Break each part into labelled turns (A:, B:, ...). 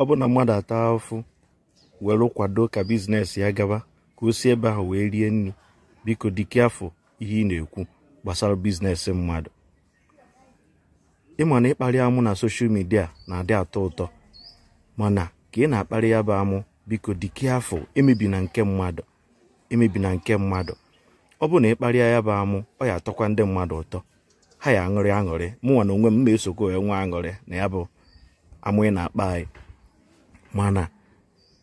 A: ọ bụ na mmadụ ata afụ were kwado ka biznes ya gaba ka o si ebe ahụ wee rie nri biko dike afọ ihe ị na-ekwu gbasara biznes mmadụ ịma na ịkparị amụ na soshal midia na-adị atọ ụtọ mana ka ị na-akparị ya bụ amụ biko dike afọ emebi na nke mmadụ emebi na nke mmadụ ọ bụ na ịkparịa ya bụ amụ ọ ya atọkwa ndị mmadụ ụtọ ha ya aṅụrị aṅụrị mụnwa na onwe m ma esokwa onwe aṅụrị na ya bụ amụ ị na-akpa anyị mana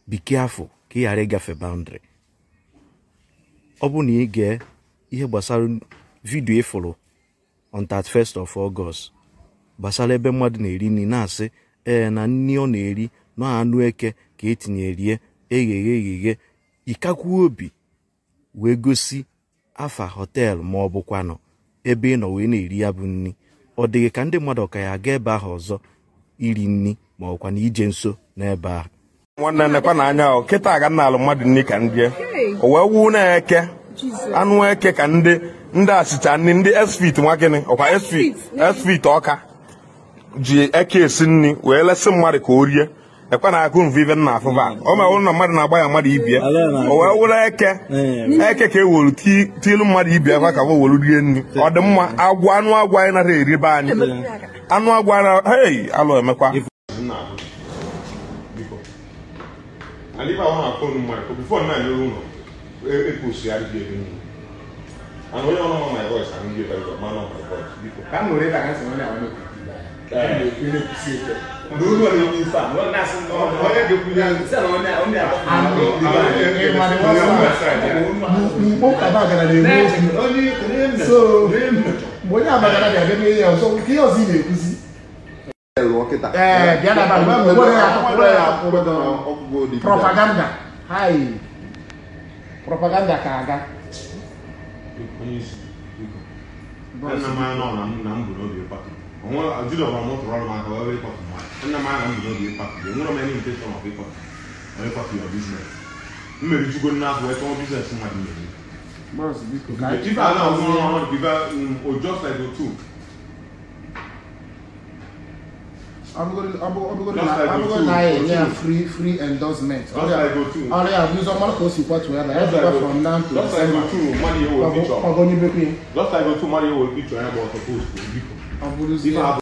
A: be afọ ka ị ghara ịgafe boundary ọ bụ na ị gee ihe gbasara vidio ịfụrụ on 31st of August gbasara ebe mmadụ na-eri nri na-asị ee na nri ọ na-eri nọ anụ eke ka etinyerie egheghe egheghe ịkakwuo obi wee gosi afa họteelụ ma ọ bụkwanụ ebe ị nọ wee na-eri ya bụ nri ọ dịghị ka ndị mmadụ ka ya aga ebe ahụ ọzọ iri nri ma ọkwa na ije nso n'ebe ahụ nwanne nnekwa na anya ọ kịta ga nna alụ mmadụ nri ka
B: ndị o wee na-eke anụ eke ka ndị ndị achịcha nri ndị esfit nwa gịnị ọkwa esfit esfit ọka ji eke esi nri wee lesị mmadụ ka o rie ekwe na akụ mvive nna afụfa ọ ma ụlọ na mmadụ na-agba ya mmadụ ibie wee wụrụ eke hmm. e eke ka ewolu tiilu mmadụ ibie akwa ka wụ wolu rie nri hmm. ọ dị mma agwa anụ agwa anyị nara eribe anyị hmm. anụ alụ emekwa
C: dulu yang bisa lo nas pokoknya dia punya bisa lo nya lo nya aku
B: mau kaba kana de so mbonya aba kana de agemi ya so ki o si de kusi lo kita eh dia na ba mo propaganda hai propaganda kaga
C: Nnamdi anọ na mbụ n'obi pati wọn juda wọn wọn tọrọ ọrọ maka wọn bẹ kọfì mọ ẹnna maa nà mbọ bẹ kọfì bẹ nwúrọ mẹ ní ntẹ sọmọ bẹ kọfì wọn bẹ kọfì yọ bísínẹsì mmeri tugo nná afọ ẹtọ bísínẹsì mọ àdìyẹ ni. bọ́ọ̀sì bí kò ká ẹtí bá náà wọn wọn bíbá ọjọ́ ṣàìdò abugodi na ye ni a free free endorsement ọrẹ abusọ mọlẹ kò sì pọ tuya la ẹ from now to december ọgọ ní bẹpẹ. lọ́sàgò tù mọ́ni yẹ wò picture ẹ̀ bọ̀ ọ̀tọ̀ post kò bí kò. Alburuzinho.